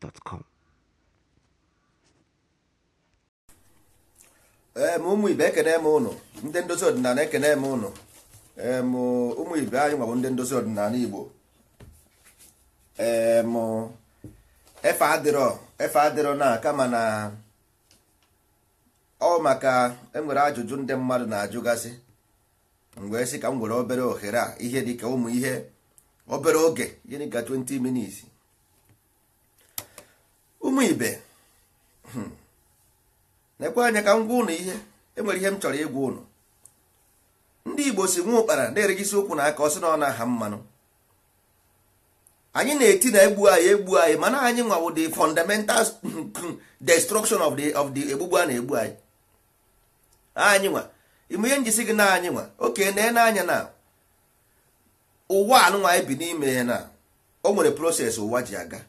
gmail.com ụmụ ibe ekene m ụnụ ndị ndozi ọdịnala ekene m ụnụ ụmụ ibe anyị nwabụ ndị ndozi ọdịnala igbo efe adịrọ efe adịrọ na kama na ọ maka enwere ajụjụ ndị mmadụ na-ajụgasị mgbe si ka m nwere obere ohere a ihe dịka ụmụ ihe obere oge gịnị ka 20 minutes ụmụ ibe hmm. na-ekwe anya ka m gwa ụnụ ihe enwere ihe m chọrọ ịgwa ụnụ ndị igbo si nwa ụkpara na-erigisi ụkwụ na aka ọsị na ọ na-aha mmanụ anyị na-eti na egbu anyị egbu anyị mana anyị nwawo the fundamental destruction of the of the egbugbu a na-egbu anyị anyị nwa ime ihe njisi gị na anyị nwa oke na anya na ụwa anụnwa anyị bi n'ime ya na o nwere proses ụwa ji aga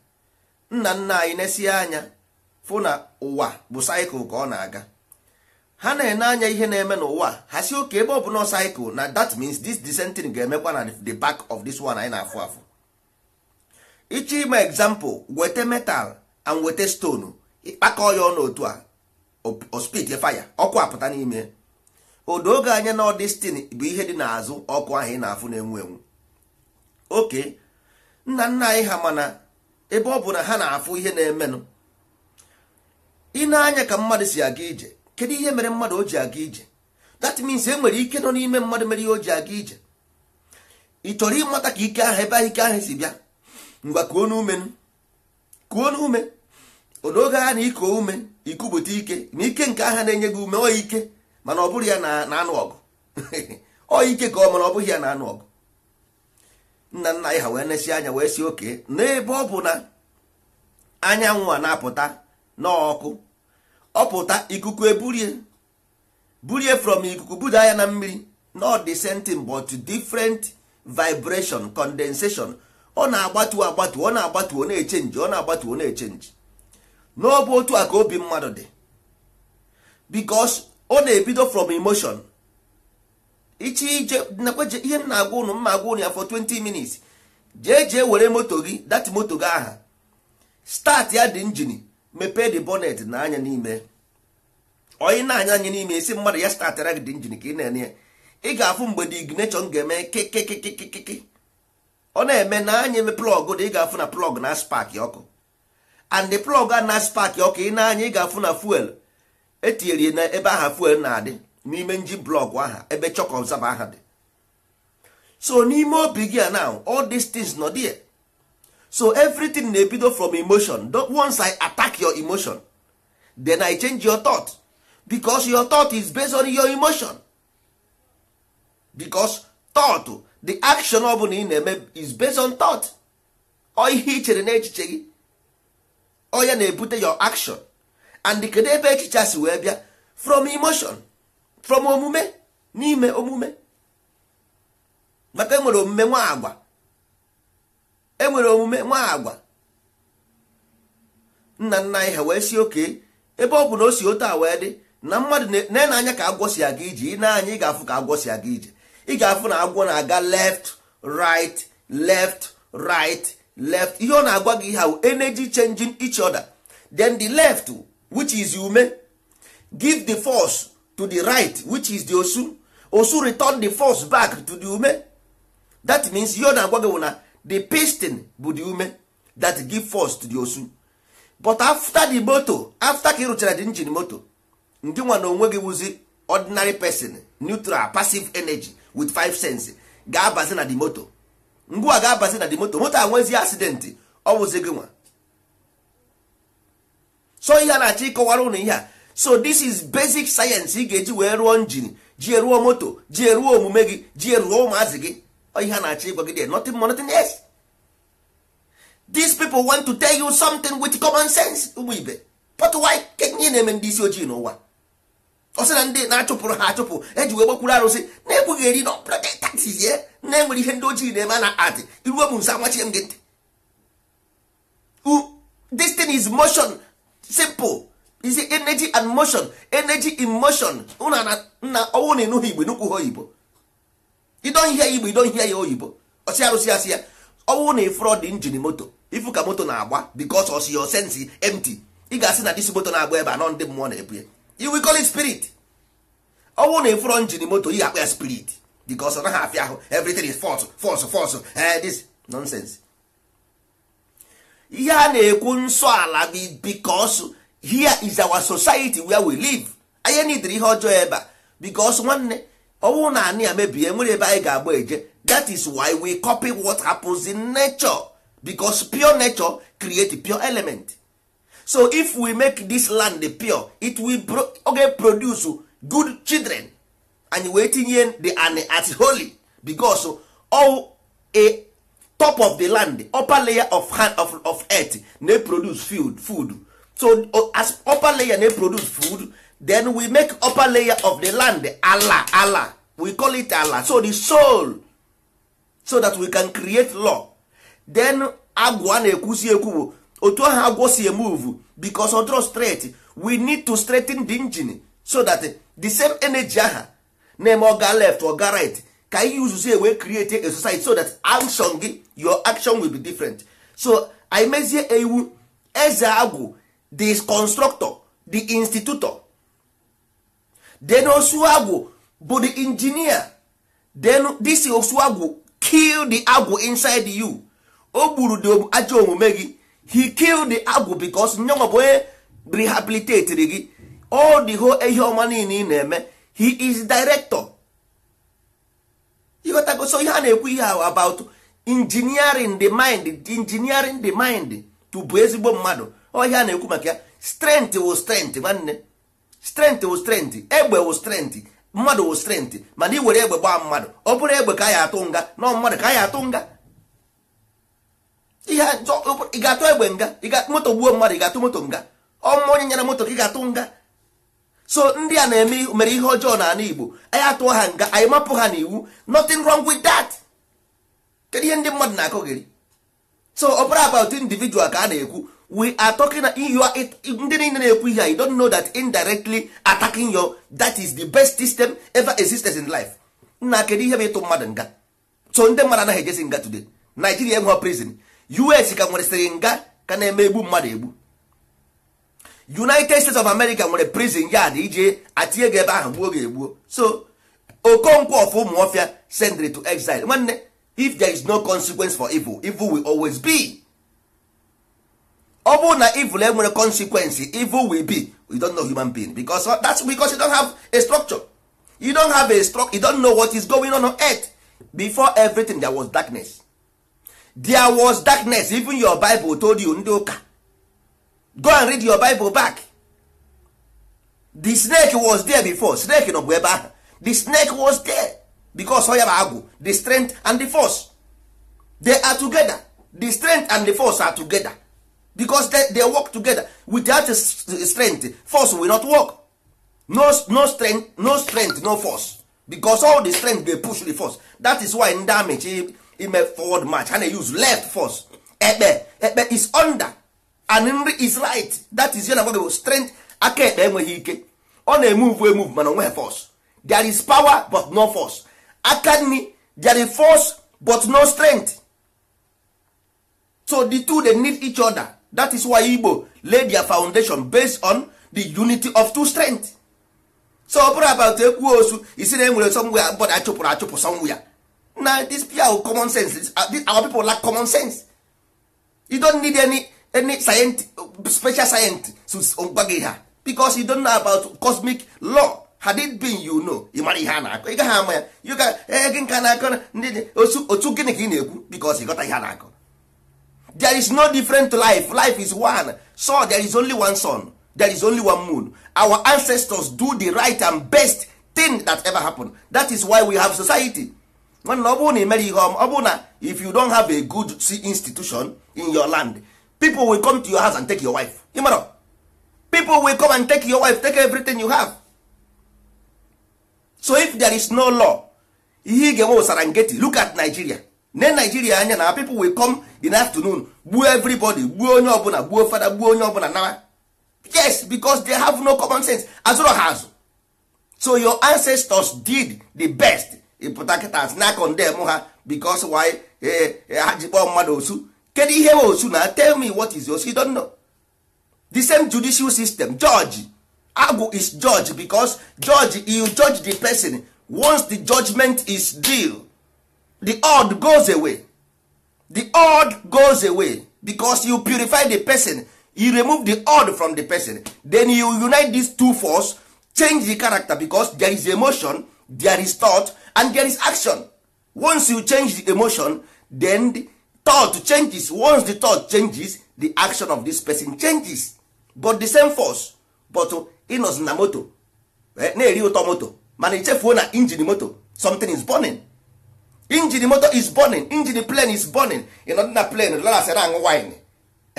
nna nna anyị na-esi anya fụ na ụwa bụ saịkụl ka ọ na-aga ha na-ene anya ihe na-eme n'ụwa ha si oke ebe ọ bụ saịkụl na that means this dissenting ga-emekwa na the back of this one anyị na-afụ afụ ịchọ ime example weta metal and weta stone ịkpakọ ya ọnụ otu a ospit fire ọkụ apụta n'ime odo oge anya na ọdestin bụ ihe dị n'azụ ọkụ ahụ ị na-afụ na-enwu enwu oke nna nna anyị ha mana ebe ọ bụ na ha na-afụ ihe na-emenụ ịna anya ka mmadụ si aga ije kedu ihe mere mmadụ o ji aga ije that means e nwere ike nọ n'ime mmadụ mere ihe o ji aga ije ị chọrọ ịmata ka ike ahụ ebe ahụ ike ahụ si bịa ngwa kuo n'ume kuo n'ume odoge ha na iko ume ikupụta ike na ike nke aha na-enye gị ume ọ ike mana ọ bụrụ ya na anụ ọgụ ọ ike ka ọ mana ọ bụghị ya na anụ ọgụ nna nna anyị ha wee nesi anya wee si oke n'ebe ọ bụ na anyanwụ a na-apụta n'ọkụ ọpụta ikuku eburie burie from ikuku buda ya na mmiri not the but different vibration condensation ọ na-agbatu agbatu ọ na-agbatu ọ na-echenji ọ na-agbatu ọ na-echenji n'ọbụ otu a ka obi mmadụ dị because ọ na-ebido from emotion iche ije nakwa ihe m na-agwa ụnụ mma agwa ụnụ ya for 20 minutes jee jee were moto gị dat moto gị aha start ya dị njin mepee de bonnet na anya n'ime onye na-anya anya n'ime esi mmadụ ya startara gị dị njin ka ị na-ene ya ị ga-afụ mgbe the ignition ga-eme kekekekekeke ọ na-eme na anya eme plọg dị ị ga-afụ na plọg na spak ọkụ and the plọg a na spak ọkụ ị na-anya ị ga-afụ na fuel etinyere na ebe aha fuel na-adị n'ime nji blọgụ aha ebe chọk ọbzaba aha dị so n'ime obi gị a now all dis things nọ dị. so everything na-ebido from emotion once i attack your emotion then i change your thought because your thought is based on your emotion because thought the action ọ bụla ị na-eme is based on thought O ihe i chere n'echiche gị ọ na-ebute your action and kedu ebe echiche si wee bịa from emotion from omume n'ime omume maka enwere omume nwa agwa enwere omume nwa agwa nna nna anyị ha wee si oke ebe ọ bụ na o si otu a wee dị na mmadụ na-ene anya ka agwọ si aga ije ị na-anya ị ga-afụ ka agwọ si aga ije ị ga-afụ na agwọ na-aga left right left right left ihe ọ na-agwa gị ha energy changing each other then the left which is ume give the force to the right which is the osu osu return the force back to the ume that means ihe ọ na-agwa gị na the piston bu the ume that give force to the osu but after the moto after ka ị rụchara the engine moto ndị nwa na onwe gị wụzi ordinary person neutral passive energy with five cents ga-abazi na the moto mgbe a ga-abazi na the moto moto nwezi accident ọ wụzi gị nwa so ihe a na-achọ ịkọwara ụnụ ihe a so this is basic science ị ga-eji wee rụọ njin ji eruo moto ji eruo omume gị ji eruo ụmụazị gị ihe a na-achọ ịgwa gị dị nothing more nothing else these people want to tell you something with common sense ụmụ ibe pọtụwai kenye na-eme ndị isi ojii n'ụwa ọ na ndị na-achụpụrụ ha achụpụ eji wee gbakwuru arụsị na egbughị eri na ọpụrọtatizie na enwere ihe ndị ojii na-eme na adị iruo m nso amachie m gị ntị this thing is motion simple is energy and motion energy in motion na nna ọnwụ na ịnụghị igbo nukwu ha oyibo idon ihe ya igbo idon ihe ya oyibo ọsị arụsị asị ya ọnwụ na ịfụrọ dị njin moto ifu ka moto na-agba because ọsị your sense empty ị ga-asị na disi moto na-agba ebe nọ ndị mmụọ na-ebu ya will call it spirit ọnwụ na ịfụrọ njin moto you akpa ya spirit because ọ naghị afịa ahụ everything is false false false eh, this nonsense ihe a na-ekwu nsọ ala bikọsụ here is our society where we live anyị nidiri ihe ọjọọ ebe a because nwanne ọnwụ na anị ya mebie e nwere ebe anyị ga-agba eje that is why we copy what happens in nature bicos pure nature create pure element so if we make this land pure it will pro okay, produce good children and wee tinye the an at holy because all a top of the land upper layer of hand of, of earth na produce food food so uh, as upper layer na produce food then we make upper layer of the land ala ala we call it ala so the soul so that we can create law then agwa na-ekwusi ekwu bụ otu ahụ agwọ si move because odro straight we need to straighten the engine so that the same energy aha na oga left oga right ka ihe uzuzu ewee create a society so that action gi your action will be different so anyị ewu eze agwụ the constructor the institutor then osuagwu bụ the engineer then this osuagwu kill the agwu inside you o gburu the ajọ omume gị he kill the agwu because nyo bụ onye rehabilitatiri gị all the whole ihe ọma niile ị na-eme he is director ịghọtago so ihe a na-ekwu ihe about engineering the mind engineering the mind to bụ ezigbo mmadụ ọhịa na-ekwu maka ya strent wụ strent nwanne strent wụ strent egbe wụ strent mmadụ wụ strent mana ị were egbe gbaa mmadụ ọ bụrụ egbe ka ya atụ nga nọ mmadụ ka ya atụ nga ị ga-atụ egbe nga moto gbuo mmadụ ị ga-atụ moto nga ọmụma onye nyere moto ka ị ga-atụ nga so ndị a na-eme mere ihe ọjọọ n'ala Igbo anyị atụọ ha nga anyị mapụ ha n'iwu nothing wrong with that kedu ihe ndị mmadụ na-akọgịrị so opera about individual ka a na-ekwu we are talking ndị niile na-ekwu ihe you don't know that indirectly attacking your that is the best system ever existed in life nna kedu ihe bụ ịtụ mmadụ nga so ndị mmadụ anaghị ejesi nga today Nigeria enwe prison US ka nwere nga ka na-eme egbu mmadụ egbu United States of America nwere prison yard ije atinye gị ebe ahụ gbuo ga egbuo so Okonkwo of Umuofia sendry to exile nwanne if there is no consequence for evil evil will always be ọ bụrụ na evil enwere consequence evil will be you don't know human being because that's because you don't have a structure you don't have a structure you don't know what is going on on earth before everything there was darkness there was darkness even your bible told you ndị ụka go and read your bible back the snake was there before snake nọ bụ ebe ahụ the snake was there because ya bụ agwụ the strength and the force they are together the strength and the force are together because they, they work together without strength force will not work no, no strength no strength no force because all the strength dey push the force that is why ndị amịchi ime forward march and na use left force ekpe ekpe is under and nri is right that is yana gwago strength aka ekpe enweghị ike ọ na-emove emove mana onweghị force there is power but no force aka nri there is force but no strength so the two they need each other that is why igbo lay their foundation based on the unity of two strength so ọ about ekwu osu isi na enwere sọmgwe bọd achụpụrụ achụpụ sọmgwe ya na this pure common sense uh, our people lack common sense you don't need any any science, special science to gwa gị ha because you don't know about cosmic law had it been you know ị mara ihe a na-akọ ị gaghị ama ya gị nka na-akọ ndị dị otu gịnị ka ị na-ekwu because ịghọta ihe a na-akọ there is no different life life is one so there is only one sun there is only one moon our ancestors do the right and best thing that ever happen. that is why we have society nwanne ọ bụrụ na imere ihe ọ na if you don have a good institution in your land people will come to your house and take your wife ịmara people will come and take your wife take everything you have so if there is no law ihe ị ga-enwe look at Nigeria ne Nigeria anya na people will com in afternoon gbuo everybody gbuo onye ọbụla gbuo fada gbuo onye ọbụla nawa yes because they have no common sense azụrụ ha azụ so your ancestors did the best ịpụta kịta na condem ha because why eh, eh, ha ji mmadụ osu kedu ihe osu na tell me what is osu you don't know the same judicial system George agwụ is judge because judge you judge the person once the judgment is due the odd goes away the odd goes away because you purify the person you remove the odd from the person then you unite these two force change the character because there is emotion there is thought and there is action once you change the emotion then the thought changes once the thought changes the action of this person changes but the same force but ịnọzi na moto eh, na-eri ụtọ moto mana ichefuo na injin moto something is burning injin moto is burning injin plane is burning ịnọdị na plane lalasị na aṅụ wine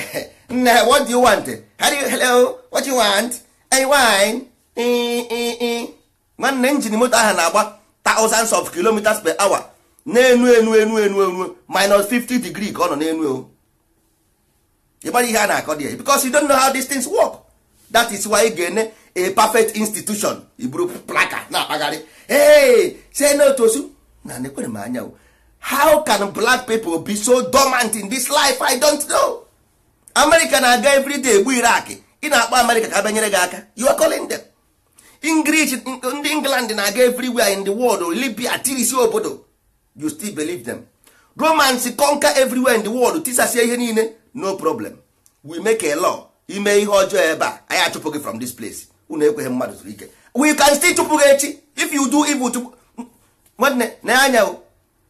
nne ha what do you want how do you hello what do you want a wine nwanne injin moto ahụ na-agba thousands of kilometers per hour na-enu enu enu enu enu minus 50 degree ka ọ nọ n'enu o oh. ịgbara ihe a na-akọ dị because you don't know how these things work that is why ị ga-ene a perfect institution iburu plaka na-akpagharị hey say no na nekwere m anya how can black people be so dormant in this life i don't know america na-aga everyday egbu iraq ị na-akpọ america ka banyere gị aka you are calling them english ndị england na-aga everywhere in the world libya tirisi obodo you still believe them romans conquer everywhere in the world tisasie ihe niile no problem we make a law ime ihe ọjọọ ebe a anyị achụpụ gị from this place unu ekweghị mmadụ zuru ike we can still chụpụ gị echi if you do evil chụpụ nwanne na anya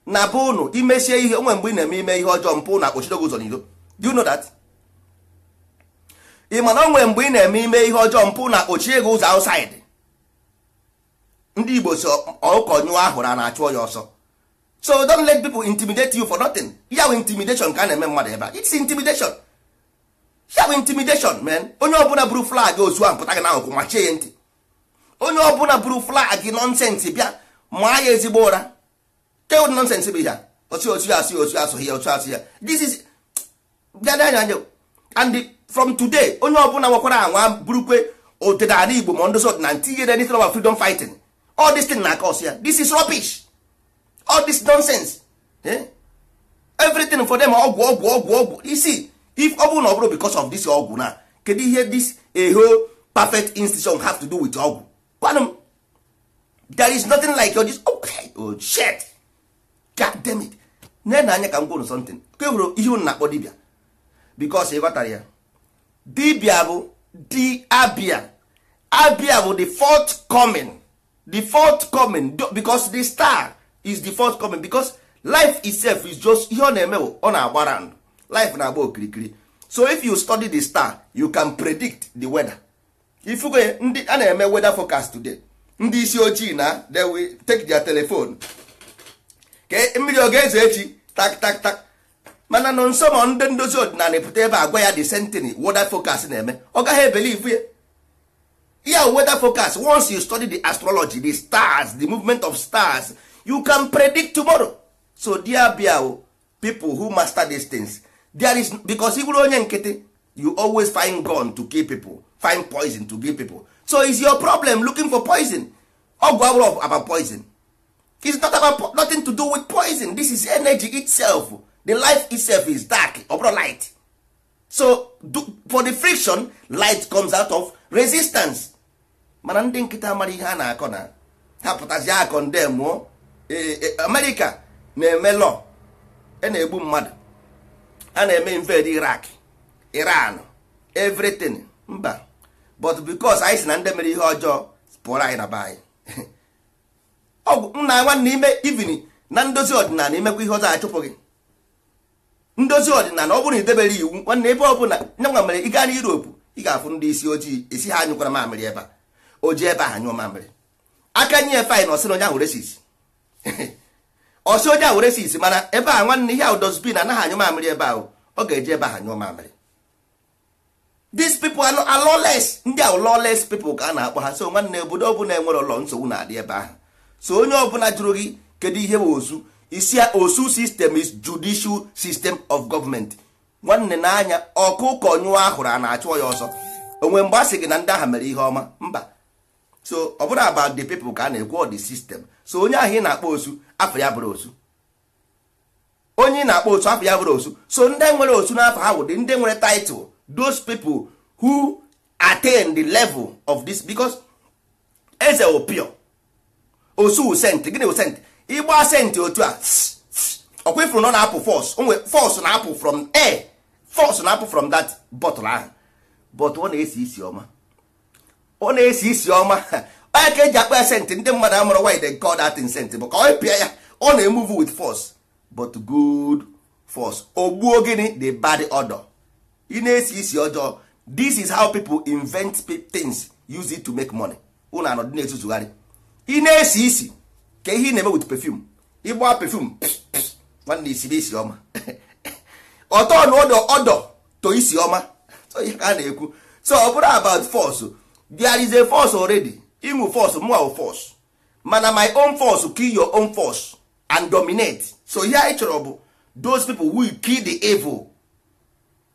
na be ụnụ imesie ihe onwe mgbe ị na-eme ime ihe ọjọọ mpụ na akpọchidogo ụzọ n'iro do you know that ị mana onwe mgbe ị na-eme ime ihe ọjọọ mpụ na akpọchie gị ụzọ outside ndị igbo si ọkụkọ nyụọ ahụ na na-achụ ya ọsọ so don't let people intimidate you for nothing ya bụ intimidation ka a na-eme mmadụ ebe a it's intimidation ya bụ intimidation man onye ọbụla buru flag ozu ahụ pụta gị na ahụ machie ya ntị onye ọbụla buru flag nọnsensị bịa maa ya ezigbo ụra keod nọnsensị bụ ya, osi osi asụ osi asụ ya osi asụ ya this is bịa n'anya anya and from today onye ọbụla nwekwara anwa burukwe odịnala igbo ma ndozi ọdịna nti ihe anything about freedom fighting all this thing na cause ya this is rubbish all this nonsense eh? everything for them ọgwụ ọgwụ ọgwụ ọgwụ isi if ọ bụrụ na ọ bụrụ because of this ọgwụ na kedu ihe this a eh, perfect institution have to do with ọgwụ kwanụ there is nothing like your this okay, oh, oh shit god damn it na-ene anya ka m gwụrụ something ka e hụrụ ihe unu na-akpọ dibia because ị ya dibia bụ di abia abia bụ the fourth coming the fourth coming because the star is the fourth coming because life itself is just ihe ọ na-eme bụ ọ na agbara ndụ. life na-agba okirikiri so if you study the star you can predict the weather ifuge ndị a na-eme weather forecast today ndị isi ojii na they will take their telephone ka mmiri oge eze echi tak tak tak mana nọ nso ma ndị ndozi ọdịnala pụta ebe agwa ya the sentiny weather forecast na-eme ọ gaghị ebelivu ya ya weather forecast once you study the astrology the stars the movement of stars you can predict tomorrow so dear o people who master these things there is because ị onye nkịtị you always find gun to kill people find poison to kill people so is your problem looking for poison ọgwụ abụrụ about poison it's not about nothing to do with poison this is energy itself the life itself is dark ọbụrụ light so do, for the friction light comes out of resistance mana ndị nkịta mara ihe a na-akọ na ha pụtazi akọ nde mụọ e, e, amerika na-eme lọ e na-egbu mmadụ a na-eme inved irak Iran evritin mba but because anyị si na ndị mere ihe ọjọọ pụọrọ anyị na be anyị ọgwụ nna nwanne ime ivin na ndozi ọdịnala imekwa ihe ọzọ achụpụ gị ndozi ọdịnala ọ bụrụ na idebere iwu nwanne ebe ọ bụla mere ị gaa na Europe ị ga-afụ ndị isi ojii esi ha anyụkwara mamịrị ebe a o ji ebe ahụ nyụọ mamịrị aka nye efe anyị na ọsịna onye ahụ resis ọsị onye ahụ resi isi mana ebe a nwanne ihe ahụ dozbin anaghị anyụ mamịrị ebe ahụ ọ ga-eji ebe ha anyụ mamịrị these people are lawless ndị ahụ lawless people ka a na-akpọ ha so nwanne obodo ọbụla enwere ụlọ nsogbu na-adị ebe ahụ so onye ọbụla jụrụ gị kedu ihe bụ osu isi osu system is judicial system of government nwanne n'anya ọkụkọ nyụọ ahụrụ a na-achụ ya ọsọ onwe mgbe a sị gị na ndị ahụ mere ihe ọma mba so ọ bụrụ about the people ka a na-ekwu the system so onye ahụ ị na-akpọ osu afọ ya bụrụ osu onye na-akpọ osu afọ ya bụrụ osu so ndị nwere osu n'afọ ha wụdị ndị nwere title those people who attain the level of this because eze opio osu sent gịnị wụ sent ịgba sent otu a ọkwefuru nọ na-apụ fos onwe fọs na-apụ from air Fọs na-apụ from that bottle ahụ but ọ na-esi isi ọma ọ na-esi isi ọma onye ka eji akpa ya sentị ndị mmadụ amụrụ why they call that sentị bụ ka onye pịa ya ọ na-emuvu with force but good force ogbuo gịnị the bad odor ị na-esi isi ọjọọ this is how people invent things use it to make money ụnụ anọdụ na-etuzugharị ị na-esi isi ka ihe ị na-eme with perfume ịgba pefum nwanne isi isi ọma ọtọ na ọdọ ọdọ to isi ọma so ihe ka a na-ekwu so ọ bụrụ about force there is a force already ịnwụ force mụa wụ force mana my own force kill your own force and dominate so ihe anyị chọrọ bụ those people will kill the evil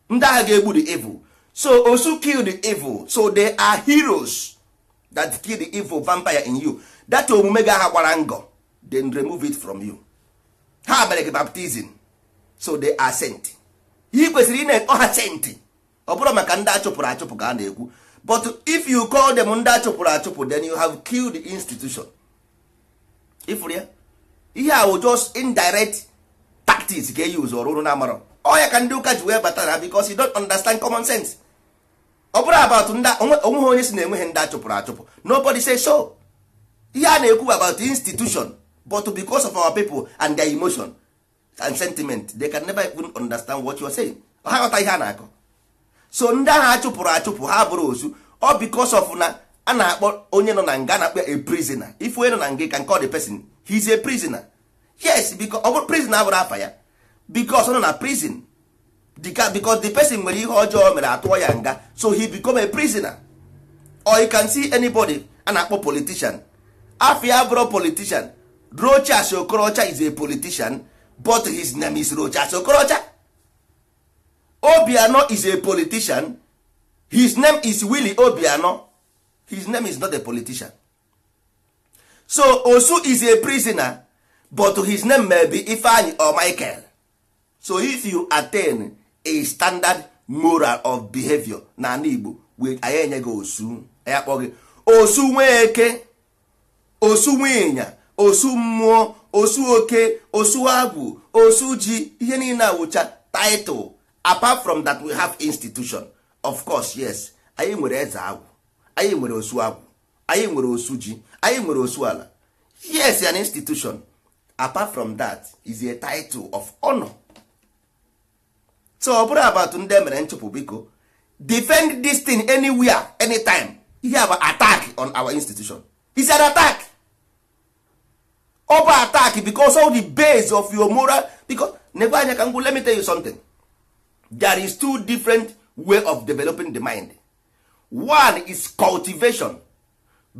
ndị agha ga-egbu the evil so osu kill the evil so they are heroes that kill the evil vampire in you that omume ga aha gwara ngọ then remove it from you ha mere gị baptizim so they are sent ihe kwesịrị ị na-ekpọ ha senti ọ bụrụ maka ndị achụpụrụ achụpụ ka a na-ekwu but if you call them ndị achụpụrụ achụpụ then you have killed the institution ifuru ya ihe a just indirect tactics ga use ọrụ na amara ọya ka ndị ụka ji wee bata na because you don't understand common sense ọ bụrụ about onweghị onye si na enweghị ndị achụpụrụ achụpụ nobody say so ihe a na-ekwu about institution but because of our people and their emotion and sentiment they can never even understand what you are saying ha ghọta ihe a na-akọ so ndị ahụ achụpụrụ achụpụ ha bụrụ ozu ọ because of na a na-akpọ onye nọ na nga na-akpọ a prisoner if onye nọ na nga ka nke ọ pesin person a prisoner yes because ọ bụrụ prisoner abụrụ afa ya because ọ nọ na prison dịka because the person nwere ihe ọjọọ mere atụọ ya nga so he become a prisoner or you can see anybody a na-akpọ politician afọ ya abụrụ politician Rochas Okorocha is a politician but his name is Rochas Okorocha obiano is a politician his name is willy obiano his name is not a politician so osu is a prisoner but his name may be ifeanyi or michael so if you attain a standard moral of behavior n'ala igbo anyị enye gị osu anyị akpọ gị osu nweke osu nwịnya osu mmụọ osu oke osu agwụ osu ji ihe niile awụcha taịtụl apart from that we have institution of course yes anyị nwere eze agwụ anyị nwere osu agwụ anyị nwere osu ji anyị nwere osu ala yes an institution apart from that is a title of honor so ọ bụrụ about ndị e mere nchụpụ biko defend this thing anywhere anytime ihe bụ attack on our institution is an attack ọ bụ attack because all the base of your moral because nekwe anya ka let me tell you something. there is two different way of developing the mind one is cultivation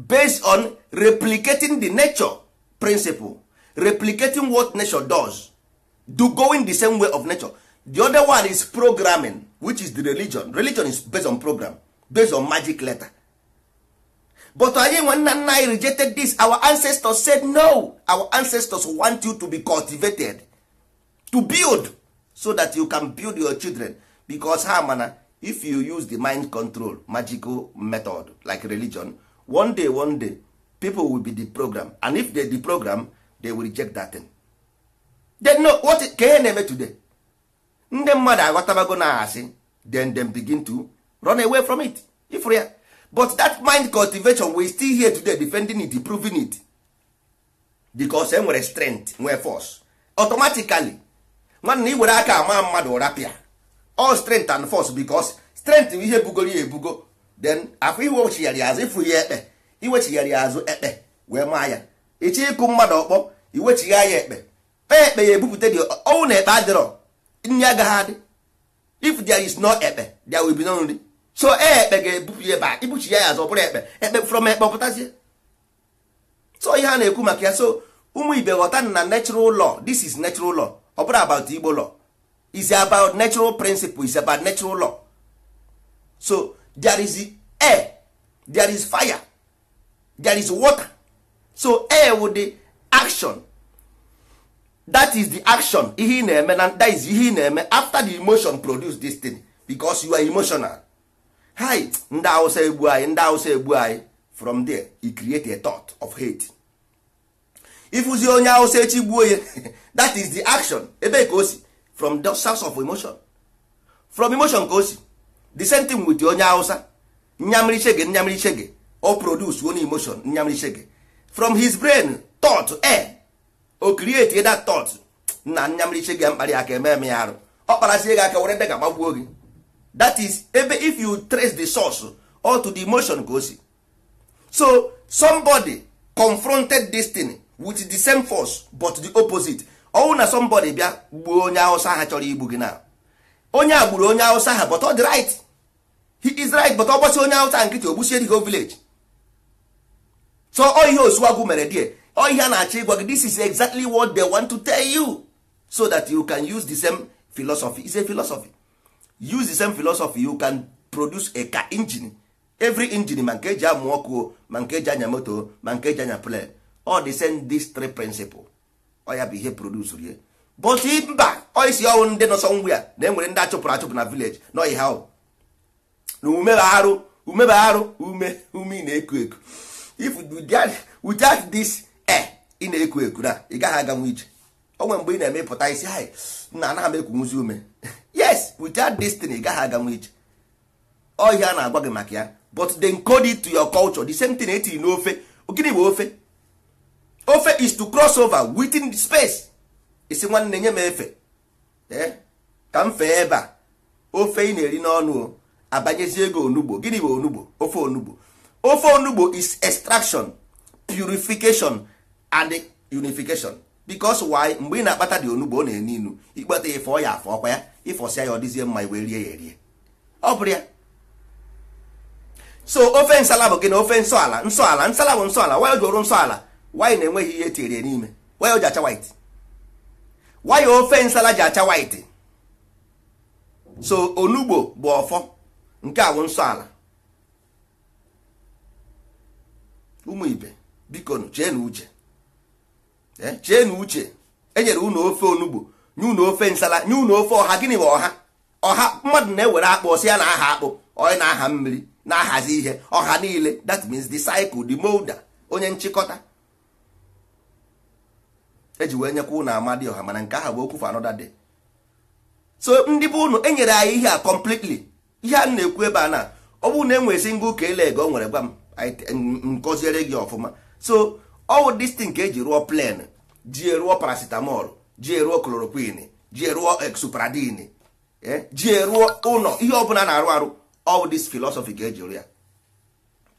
based on replicating the nature principle replicating what nature does do going the same way of nature the other one is programming which is the religion religion is based on program based on magic letter but anyị nwe nna nna anyị rejected this our ancestors said no our ancestors want you to be cultivated to build so that you can build your children because ha mana if you use the mind control magical method like religion one day one day people will be the program and if they the program they will reject that thing. they no what ka ihe na-eme today ndị mmadụ aghọtabago na asị then them begin to run away from it if ya but that mind cultivation we still here today defending it proving it because e nwere strength nwee force automatically nwanne i were aka ama mmadụ ụra pịa all strength and force bicos strength bụ ihe bugoro ya ebugo then afọ iwechigharị azụ ịfụ ya ekpe azụ ekpe wee maa ya ịchọ ịkụ mmadụ ọkpọ iwechigha ya ekpe kpee ekpe ya ebupụta dị ọnwụ na ekpe adịrọ nri agaghị adị if there is no ekpe there will be no nri so e ekpe ga-ebupụ ya ebe a ibuchi ya azụ ọ bụrụ ekpe ekpe from ekpe pụtazie so ihe a na-ekwu maka ya so ụmụ ibe ghọta na natural law this is natural law ọ bụrụ about igbo law is about natural principle is about natural law so there is air there is fire there is water so air with the action that is the action ihe na-eme na that is ihe ị na-eme after the emotion produce this thing because you are emotional hi ndị awụsa egbu anyị ndị awụsa egbu anyị from there he create a thought of hate ịfụzi onye awụsa echi gbuo ya that is the action ebe ka o si from the source of emotion from emotion ka o si the same thing with onye hausa nyamrichege nyamrichege o produce one emotion nyamrichege from his brain thought air o create that thought na nyamrichege mkparị aka eme eme ya arụ ọ kparasie gị aka were ndị ga-agbagbuo gị that is ebe if you trace the source or to the emotion ka o si so somebody confronted this thing with the same force but the opposite ọnwụ na somebody bịa gbuo onye awụsa ha chọrọ igbu gị na onye a gburu onye awụsa ha but ọ dị right he is right but ọ gbasi onye awụsa nkịtị o dị gị village so ọ ihe osuwagwu mere die ọ ihe a na-achọ ịgwa gị this is exactly what they want to tell you so that you can use the same philosophy is a philosophy use the same philosophy you can produce a car engine every engine ma nke eji amụ ọkụ ma nke eji anya moto ma nke eji anya plan all the same these three principles ọya bụ ihe produs rie but mba oisi ọnwụ ndị nọsọ ngwụ ya na enwere ndị achụpụrụ achụpụ na vileji na ọyị ha na umebagharụ umebagharụ ume ume ị na-eku eku if without this e ị na-eku eku na ị gaghị aganwu ije onwe mgbe ị na-emepụta eme isi ha na anaghị m ekwunwuzi ume yes without this thing ị gaghị aganwu ije ọhịa na-agwa gị maka ya but they encode to your culture the same thing etiri n'ofe gịnị bụ ofe ofe is to cross over within space isi nwanne nye m efe eh? ka m fee ebe a ofe ị na-eri n'ọnụ abanyezi ego onugbo gịnị bụ onugbo ofe onugbo ofe onugbo is extraction purification and unification because why mgbe ị na-akpata dị onugbo ọ na-enu inu ịkpata ife ya afọ ọkwa ya ịfọsịa ya ọ dịzie mma iwe rie ya erie ọ bụrụ ya so ofe nsala bụ gịnị ofe nsọ ala nsala bụ nsọ ala jụrụ nsọ wanyị na-enweghị ihe etinyere n'ime wanyị ji acha white wanyị ofe nsala ji acha white so onugbo bụ ọfọ nke awụ nsọ ala ụmụ ibe biko chee na uche e, chee na uche enyere unu ofe onugbo nye unu ofe nsala nye unu ofe ọha gịnị bụ ọha ọha mmadụ na-ewere akpụ si ya na aha akpụ onye na aha mmiri na ahazi ihe ọha niile that means the cycle the molder onye nchịkọta eji wee nyekwa ụnụ amadi ọha mana nke ahụ bụ okwu for another day so ndị bụ ụnụ enyere anyị ihe a completely ihe a na-ekwu ebe a na ọ bụrụ na enwere single ka ele ego nwere gwa m nkọziere gị ọfụma so ọwụ distin ka eji rụọ plen ji eruo paracetamol ji eruo chloroquine ji eruo exupradine eh, ji eruo ụlọ ihe ọbụla na-arụ arụ all this philosophy e eji rụ ya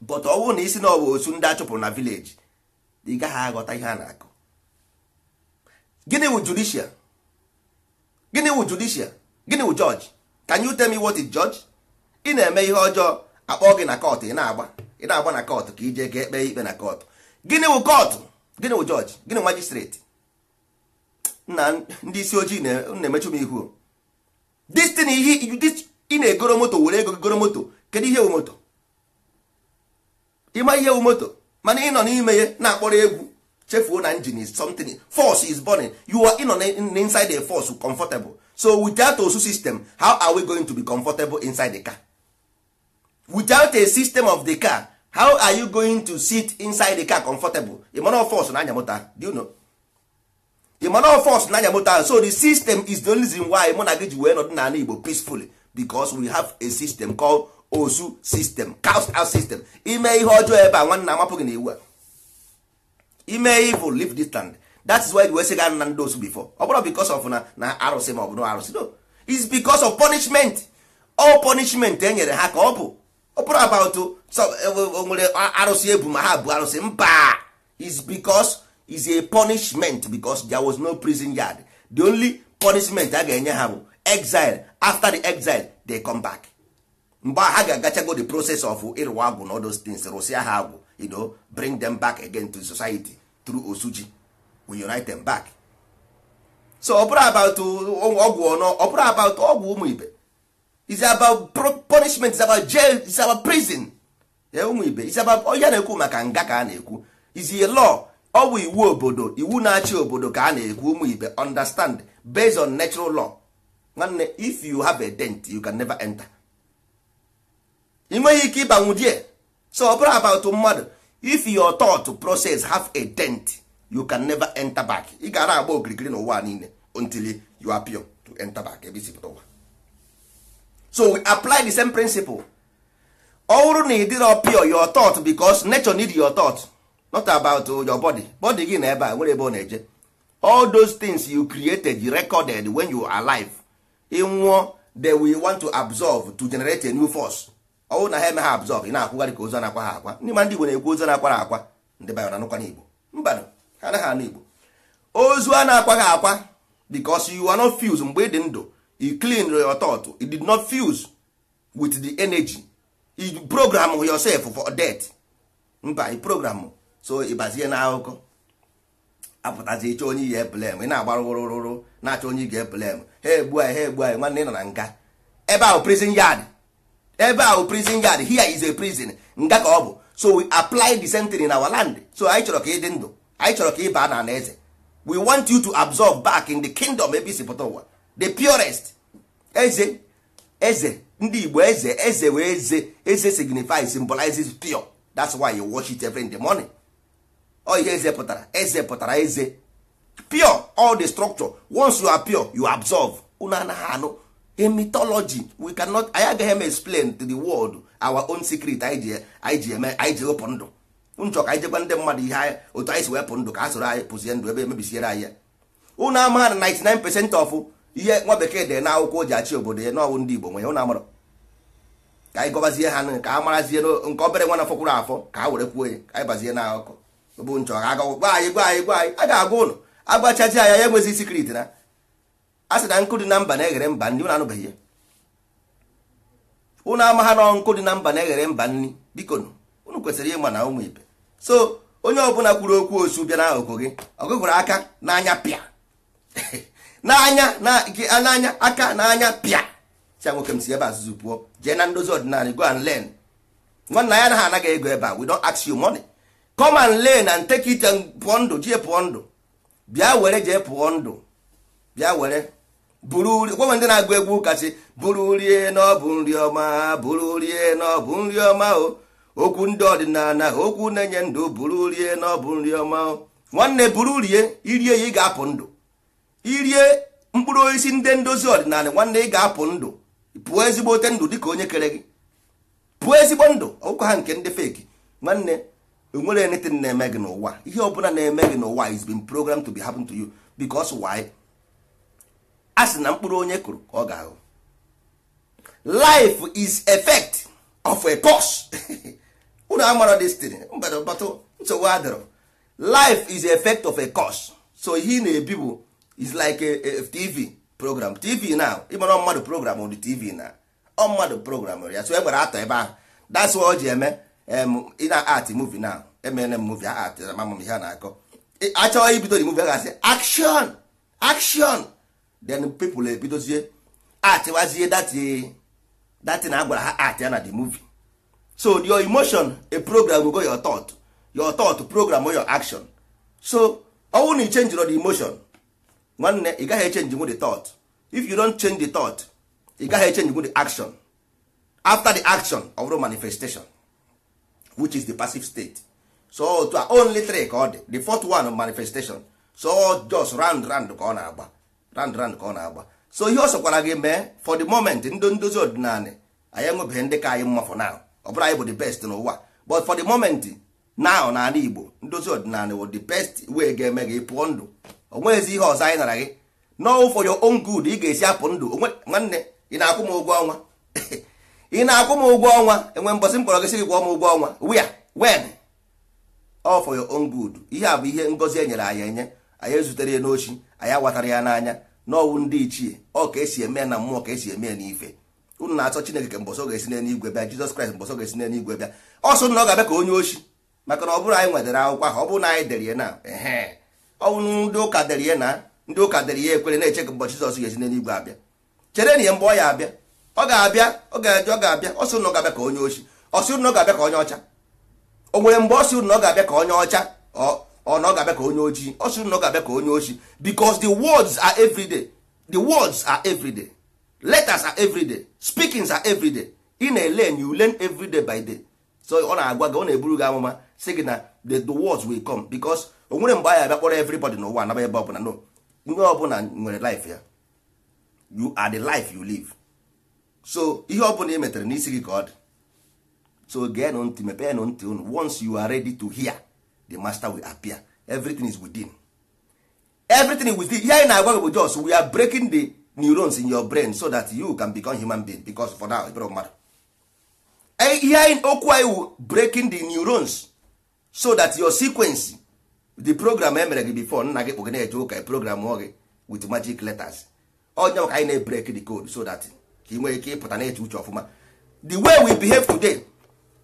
but ọ bụrụ na isi na ọ bụ osu ndị achụpụrụ na village ị gaghị aghọta ihe a na-akụ gịnị wụ judicial gịnị wụ judicial gịnị wụ judge ka you tell me what is judge ị na-eme ihe ọjọọ akpọ gị na kọt ị na-agba ị na-agba na kọt ka ije ga ekpe ikpe na kọt gịnị wụ kọtụ, gịnị wụ jọji gịnị majistreti na ndị isi ojii na-emechu m ihu destin ihe ị na-egoro moto were ego goro moto kedu ihe wu moto ịma ihe wu moto mana ị nọ n'ime ya na-akpọrọ egwu chefuo na engine is something force is burning you are in on inside a force comfortable so without osu system how are we going to be comfortable inside the car without a system of the car how are you going to sit inside the car comfortable imana force na anya do you know imana force na anya so the system is the only reason why mụ na gị ji wee nọdụ n'ala Igbo peacefully because we have a system called osu system cast out system ime ihe ọjọọ ebe a nwanna amapụ na iwu a ime evil leave land. that is why wee sị ga na osu before ọ because of na na arụsị ma ọ bụ na arụsị no is because of punishment all punishment e nyere ha ka ọ bụ ọ about e, e, e, nwere arụsị ebu ma ha bụ arụsị mba is because is a punishment because there was no prison yard the only punishment a ga-enye ha bụ exile after the exile they come back mgbe ha ga-agachago the process of ịrụwa agwụ na all those things ha agwụ ido bring them back again to society through osuji we unite them back so ọ bụrụ about ọgwụ ọnọ ọ bụrụ about ọgwụ ụmụ ibe is about punishment is about jail is about prison ụmụ ibe is about onye na-ekwu maka nga ka a na-ekwu is a law ọ bụ iwu obodo iwu na-achị obodo ka a na-ekwu ụmụ ibe understand based on natural law nwanne if you have a dent you can never enter ị nweghị ike ịbanwu die so ọ bụrụ about mmadụ if your thought process have a dent you can never enter back ị gara agba okirikiri n'ụwa niile until you appear to enter back ebe isi pụta ụwa so we apply the same principle ọhụrụ bụrụ na ị your thought because nature need your thought not about your body body gị na ebe a nwere ebe ọ na-eje all those things you created you recorded when you are alive ị nwụọ they we want to absorb to generate a new force ọnwụ na ha eme ha abzọb ị na-akwụgharị ka ozu na-akwa ha akwa ndị ma ndị Igbo na-ekwu ozu na-akwara akwa ndị bayo na anụkwana n'Igbo mba ha anaghị anụ Igbo ozu a na-akwa ha akwa because you are not fused mgbe ị dị ndụ you clean your thought you did not fuse with the energy you program yourself for death mba i program so ịbazie na akụkọ apụtazi ịchọ onye ihe blem ị na-agba rụrụrụrụ na-achọ onye ị ga ha egbu anyị ha egbu anyị nwanne ị nọ na nga ebe ahụ prison yard ebe a bụ prison yard here is a prison nga ka ọ bụ so we apply the sentry in our land so anyị chọrọ ka ị dị ndụ anyị chọrọ ka ị baa eze we want you to absorb back in the kingdom ebe isi pụta ụwa the purest eze eze ndị igbo eze eze wee eze eze signifies symbolizes pure that's why you wash it every in the morning ọ ihe eze pụtara eze pụtara eze pure all the structure once you are pure you absorb unu anaghị anụ a mythology we cannot anyị agaghị eme explain to the world our own secret anyị ji eme anyị ji wepụ ndụ nchọ ka anyị jegwa ndị mmadụ ihe otu anyị si wepụ ndụ ka a soro anyị pụzie ndụ ebe emebisiere anyị ya ụnụ ama na 99 percent of ihe nwa bekee dị na akwụkwọ o ji achị obodo ya n'ọwụ ndị Igbo nwe ya ụnụ amara ka anyị gọbazie ha ka a marazie nke obere nwa na fọkwụrụ afọ ka a were kwuo ya ka anyị bazie na bụ nchọ ka agwa anyị gwa anyị gwa anyị a ga-agwa ụnụ agwachazi ya ya enweghị secret na a sị na nkụ dị na mba na-eghere mba nri ụnụ anụbeghị ya ụnụ amagha na nkụ dị na mba na-eghere mba nri biko ụnụ kwesịrị ịma na ụmụ ibe so onye ọbụla kwuru okwu osu bịa n'akụkụ gị ọgụgụrụ aka n'anya pịa n'anya n'anya aka n'anya pịa si nwoke m si ebe azụzụ pụọ jee na ndozi ọdịnala go and learn nwanna ya anaghị anaghị ego ebe a we don't ask you money come and learn and take it and pụọ ndụ jee pụọ ndụ bịa were jee pụọ ndụ bịa were buru gwanwe ndị na-agụ egwu kasị buru rie na ọ bụ nri ọma buru rie na ọ bụ nri ọma o okwu ndị ọdịnala okwu na-enye ndụ buru rie na ọ bụ nri ọma o nwanne buru rie irie ya ị ga-apụ ndụ irie mkpụrụ osisi ndị ndozi ọdịnala nwanne ị ga-apụ ndụ pụọ ezigbote ndụ ka onye kere gị pụọ ezigbo ndụ ọkụkọ ha nke ndị feki nwanne enwere anything na-eme gị n'ụwa ihe ọbụla na-eme gị n'ụwa is been programmed to be happen to you a sị na mkpụrụ onye kụrụ ka ọ ga-ahụ life is effect of a course. unu amara destiny mbadọbatụ nsogbu adịrọ life is effect of a course. so ihe ị na-ebi bụ is like a, a tv program tv now ịmara mmadụ program on tv na ọ mmadụ program ya so e gbara atọ ebe ahụ that's why ọ ji eme ị na art movie now emene m movie a atịra m, ihe a na-akọ achọghị ibido the movie a ga-asị action action then people ebidozie eh, atịwazie dati eh, na agwara ha ati ya na the movie so your emotion a program will go your thought your thought program or your action so ọnwụ na ị change the emotion nwanne ị gaghị echenji with the thought if you don't change the thought ị gaghị echenji with the action after the action of the manifestation which is the passive state so to only three ka ọ dị the fourth one manifestation so just round round ka ọ na-agba round round ka ọ na-agba so ihe ọ sọkwara gị mee for the moment ndị ndozi ọdịnala anyị enwebeghị ndị ka anyị mma for now ọ bụrụ anyị bụ the best n'ụwa but for the moment now n'ala Igbo ndozi ọdịnala wụ the best way ga-eme gị pụọ ndụ onweghịzi ihe ọzọ anyị nara gị n'ọwụ for your own good ị ga-esi apụ ndụ nwanne ị na-akwụ m ụgwọ ọnwa ị na-akwụ m ụgwọ ọnwa enwe mbọsị mkpọrọ gị sị gị gwọ m ụgwọ ọnwa where when ọ for your own good ihe a bụ ihe ngozi e nyere anyị enye anyị ezutere n'ochi anya awatara ya n'anya n'ọwụ ndị ichie ọ ka esi eme na mmụọ ka esi eme ya n'ife unu na-achọ chineke mbọsọ ga-esi bịa jizọs kraịst mbọsọ ga-esi bịa ọsọ na ọ ga-abịa ka onye oshi maka na ọ bụrụ anyị nwetara akwụkwọ ahụ ọ bụrụ na anyị dere na ehe ọnwụ ndị ụka na ndị ụka ya ekwere na-eche ka jizọs ga-esi abịa chere na ya mgbe ọ ya abịa ọ ga-abịa ọ ga ọ ga-abịa ga-abịa ka onye oshi na ga-abịa ka onye ọcha o nwere mgbe ọ ga-abịa onye ọcha ọ na ọ ga-abịa ka onye ojii ọ sịrị na ọ ga-abịa ka onye ojii because the words are everyday the words are everyday letters are everyday speakings are everyday ị na-elen you learn everyday by day so ọ na-agwa gị ọ na-eburu gị amụma sị gị na the words will come because o nwere mgbe anyị abịa kpọrọ everybody n'ụwa anaba ebe ọbụla no onye ọbụla nwere life ya you are the life you live so ihe ọbụla ị metere n'isi gị ka ọ dị so geenụ ntị mepenụ ntị unu once you are ready to hear the master will appear everything is within everything is within here in agwa bụ just we are breaking the neurons in your brain so that you can become human being because for now ịbụrụ mmadụ ihe anyị okwu anyị breaking the neurons so that your sequence the program emere gị before nna gị kpụgị na-eje ụka e program gị with magic letters onye maka anyị na-ebrek the code so that ka ị nwee ike ịpụta na-eche uche ọfụma the way we behave today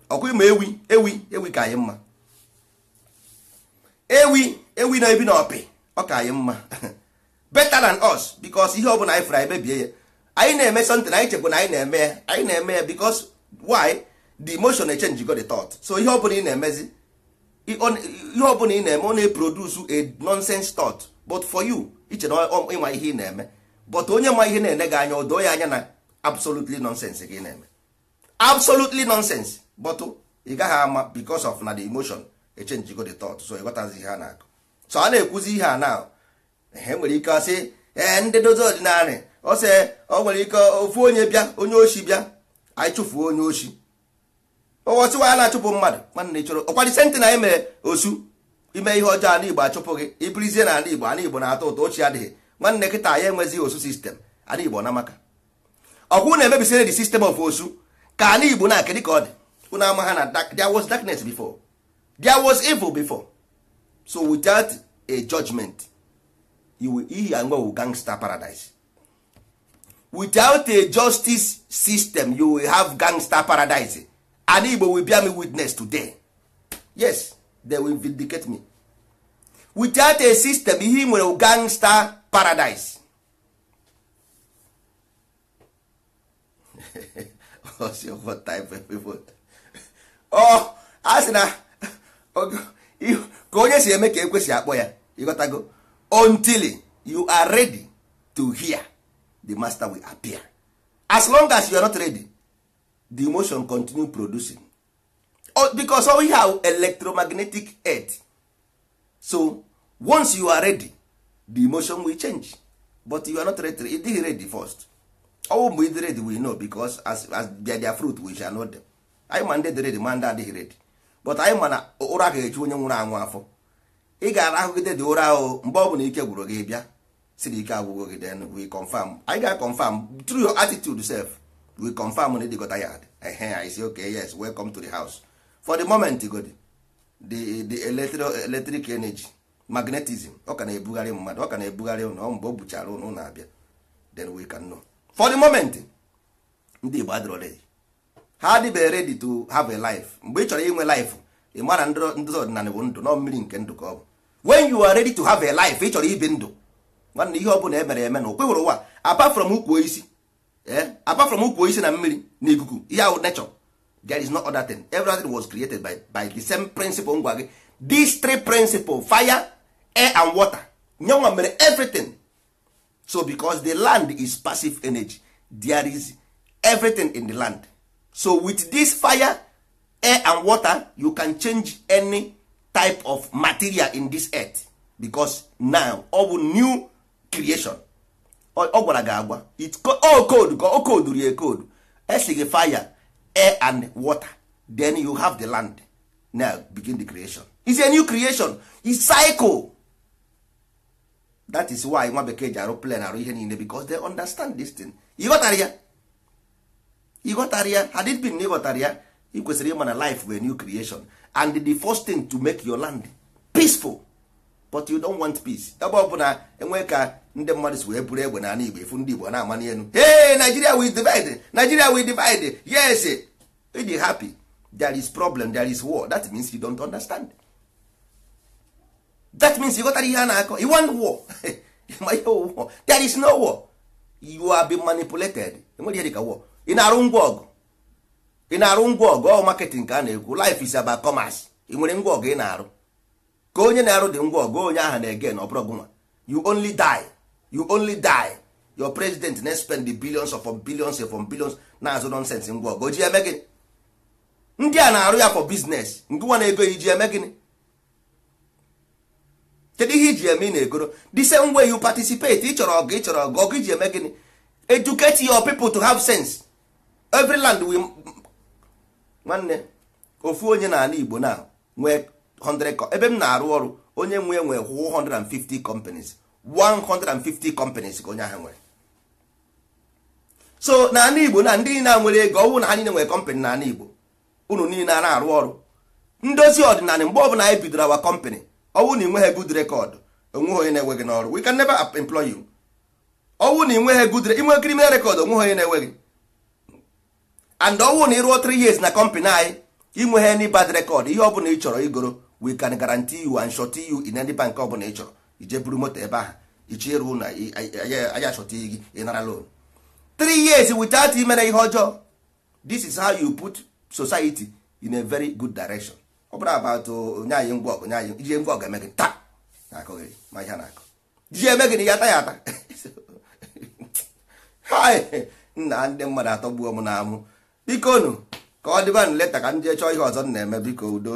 Ọkụ ma ewi ewi ewi ka anyị mma ewi ewi na ebi na ọpị ọ ka anyị mma better than us because ihe ọbụla anyị fụrụ anyị mebie ya anyị na-eme na anyị chekwa na anyị na-eme ya anyị na-eme ya because why the emotion change go the thought so ihe ọbụla ị na-emezi ihe ọbụla ị na-eme ọ na eprodusu a nonsense thought but for you iche na ịma ihe ị na-eme but onye ma ihe na-ene gị anya odoo ya anya na absolutely nonsense gị ị na-eme absolutely nonsense but ị gaghị ama because of na the emotion echenji echenjigo the ọtụtụ so ịghọtazi ihe a na-akụ so a na-ekwuzi ihe a na e nwere ike ọsị ee ndị dozi ọdịnarị ọsị ọ nwere ike ofu onye bịa onye oshi bịa anyị chụfuo onye oshi ọwọsịwa a na-achụpụ mmadụ nwanne ịchọrọ ọkwadị senti na anyị mere osu ime ihe ọjọọ ala igbo achụpụ gị ibirizie na ala igbo ala igbo na-atọ ụtọ ochie adịghị nwanne nkịta anyị enwezighị osu sistem ala igbo na maka ọkwụ na-emebisire the system of osu ka ala igbo na-akị ka ọ dị unu ama ha na there was darkness before there was evil before so without a judgment ihe anwa wu gangster paradise without a justice system you will have gangster paradise and igbo will bear me witness today yes they will vindicate me without a system ihe nwere gangster paradise of people oh na ka onye si eme ka ekwesị akpọ ya ịghọtago until you are ready to hear the master will appear as long as you are not ready the emotion continue producing oh, because we have electromagnetic earth so once you are ready the emotion will change but you are not ready it is ready first ọwụ mgbe ịdị ready we know because as, as their, their fruit we shall know them anyị ma ndị dị ma ndị adịghị ready but anyị ma na ụra ga-eju onye nwụrụ anwụ afọ ị gara ahụgide dị ụra ahụ mgbe ọ bụla ike gwụrụ gị bịa si na ike agwụgo gị then we confirm anyị ga confirm through your attitude self we confirm na ịdịgọta ya ehe anyị si okay yes welcome to the house for the moment god the the electric energy magnetism ọ ka na-ebugharị mmadụ ọ ka na-ebugharị ụnụ mgbe o buchara ụnụ na-abịa then we can know for the moment ndị Igbo adịrọ ready ha adịbeghị ready to have a life mgbe ị chọrọ inwe life ị mara ndị ọdịnala bụ ndụ nọ mmiri nke ndụ ka ọ bụ when you are ready to have a life ị chọrọ ibi ndụ nwanne ihe ọ bụla emere eme na okwe hụrụ ụwa apart from ukwu isi eh, apart from ukwu isi na mmiri na ikuku ihe ahụ nature there is no other thing everything was created by, by the same principle ngwa gị these three principles fire air and water nyenwa mere everything so because the land is passive energy there is everything in the land so with this fire air and water you can change any type of material in this earth because now ọ bụ new creation ọ gwara gị agwa o code ka o oh, code rie code esi fire air and water then you have the land now begin the creation it's a new creation e cycle that is why nwa bekee ji arụ plan arụ ihe niile because they understand this thing ị ghọtara ya ịghọtara ya had it been na ịghọtara ya ị kwesịrị ịma na life bụ a new creation and the first thing to make your land peaceful but you don't want peace ebe ọ bụla enwee ka ndị mmadụ si wee bụrụ egbe na ala Igbo efu ndị Igbo na-ama n'elu hey Nigeria we divide Nigeria we divide yes e happy there is problem there is war that means you don't understand that means you ghọtara ihe a na-akọ you want war ma war there is no war you are being manipulated enwere ihe ka war ị na-arụ ngwa ọgụ ị na-arụ ngwa ọgụ ọ marketing ka a na-ekwu life is about commerce ị nwere ngwa ọgụ ị na-arụ ka onye na-arụ dị ngwa ọgụ onye ahụ na-ege na ọbụrụ gụnwa you only die you only die your president na spend the billions of billions of billions na-azụ nonsense ngwa ọgụ oji eme gịnị ndị a na-arụ ya for nke nwa na-ego iji eme gịnị kedu ihe iji eme ị na-egoro the same way you participate ị chọrọ ọgụ ị chọrọ ọgụ ọgụ iji eme gịnị educate your people to have sense every land we nwanne ofu onye n'ala Igbo na nwee 100 ebe m na-arụ ọrụ onye nwe nwee 150 companies 150 companies ka onye ahụ nwere so n'ala Igbo na ndị niile nwere ego ọnwụ na ha niile nwere company n'ala Igbo unu niile na-arụ ọrụ ndozi ọdịnala mgbe ọbụla anyị bidoro awa company ọnwụ na ịnweghị good record onweghị onye na-enweghị n'ọrụ we can never employ you ọnwụ na ịnweghị good inwe criminal record onweghị onye na-enweghị and ọnwụ na ịrụọ 3 years na company anyị inweghị any bad record ihe ọbụla ị chọrọ igoro we can guarantee you and short you in any bank ọbụla ị chọrọ ije buru moto ebe ahụ iche na gị ịnara loan 3 years without imere ihe ọjọọ this is how you put society in a very good direction ọ bụrụ about ọgụ oh, ije ngwa ọgụ eme gị taa ihe na-akụ ji eme gị na ya ata ya ata nna ndị mmadụ gbuo m na amụ biko nụ ka ọ dịba nleta ka ndị jee chọọ ihe ọzọ na-eme biko udo